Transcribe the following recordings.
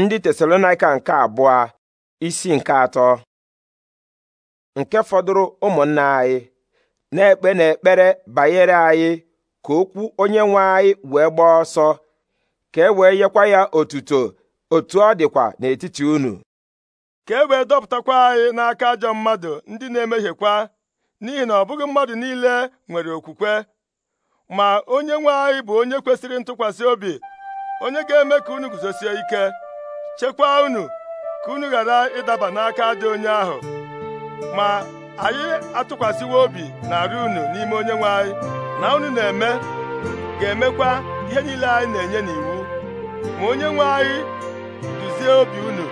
ndị tesalonaika nke abụọ isi nke atọ nke fọdụrụ ụmụnna anyị na-ekpe n'ekpere banyere anyị ka okwu onye nwe anyị wee gbaa ọsọ ka e wee nyekwa ya otuto otu ọ dịkwa n'etiti unu ka e wee dọpụtakwa anyị n'aka ajọ mmadụ ndị na-emehiekwa n'ihi na ọ bụghị mmadụ niile nwere okwukwe ma onye nwe anyị bụ onye kwesịrị ntụkwasị obi onye ga-eme ka unu guzosie ike chekwaa unu ka unu ghara ịdaba n'aka dị onye ahụ ma anyị atụkwasịwo obi arị unu n'ime onye nwe anyị na unu na-eme ga-emekwa ihe niile anyị na-enye n'iwu ma onye nwe anyị duzie obi unu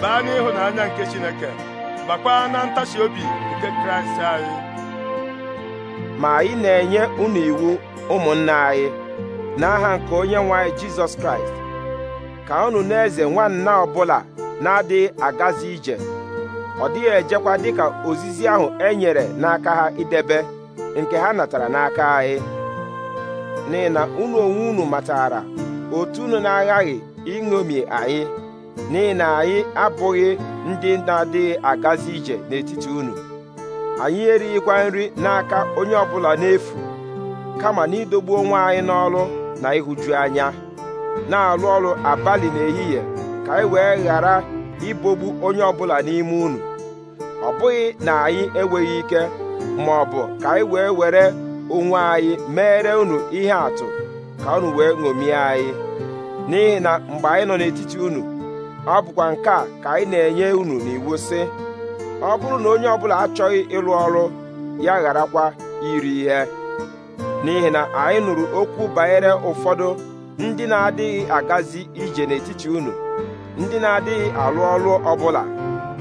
baa n'ịhụnanya nke Chineke bakwaa na ntachi obi nke Kraịst anyị ma anyị na-enye unu iwu ụmụnna anyị n'aha nke onye nwe anyị Jizọs Kraịst ka unu na-eze nwanna ọbụla na-adịghị agazi ije ọ dịghị ejekwa dịka ozizi ahụ e nyere n'aka ha idebe nke ha natara n'aka anyị n'ihi unu onwe unu matara otu unu na-aghaghị iṅomi anyị n'ihi anyị abụghị ndị na-adịghị agazi ije n'etiti unu anyị erighịkwa nri n'aka onye ọbụla n'efu kama n'idogbu onwe anyị n'ọrụ na ịhụju anya na-alụ ọrụ abalị n'ehihie ka anyị e wee ghara ibogbu onye ọbụla n'ime unu ọ bụghị na anyị enweghị ike ma ọ bụ ka anyị e wee were onwe anyị mere unu ihe atụ ka unu wee ṅomie anyị n'ihi na mgbe anyị nọ n'etiti unu ọ bụkwa nke a ka anyị na-enye unu n'iwu sị ọ bụrụ na onye ọbụla achọghị ịlụ ọrụ ya gharakwa iri ihe n'ihi na anyị nụrụ okwu banyere ụfọdụ ndị na-adịghị agazi ije n'etiti unu ndị na-adịghị alụ ọrụ ọbụla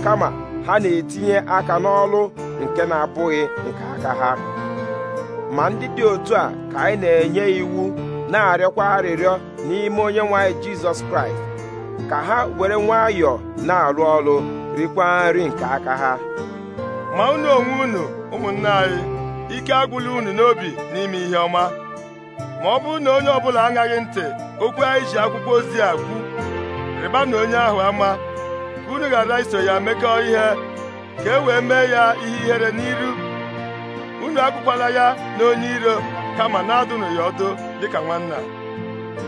kama ha na-etinye aka n'ọlụ nke na-abụghị nke aka ha ma ndị dị otu a ka anyị na-enye iwu na-arịọkwa arịrịọ n'ime onye nwanyị Jizọs Kraịst ka ha were nwayọọ na arụ ọrụ rikwa nri nke aka ha ma unu onwe unu ụmụnne anyị ike agwụla unu n'obi n'ime ihe ọma ma ọ bụrụ na onye ọbụla aṅaghị ntị okwu anyị ji akwụkwọ ozi a kwu rịba na onye ahụ ama ka unu ghara iso ya mekọọ ihe ka e wee mee ya ihe ihere n'iru unu akwụkwala ya na onye iro kama na-adụnụ ya ọdụ dịka nwanna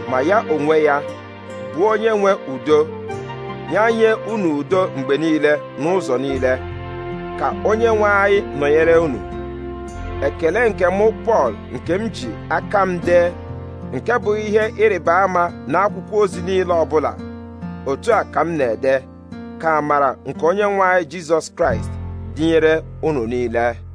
ma ya onwe ya bụ onye nwe udo nye unu udo mgbe niile n'ụzọ niile ka onye nwe anyị nọnyere unu ekele nke mụ Pọl nke m ji aka m dee nke bụ ihe ịrịba ama n'akwụkwọ ozi niile ọbụla otu a ka m na-ede ka amara nke onye nwe anyị Jizọs Kraịst dịnyere unu niile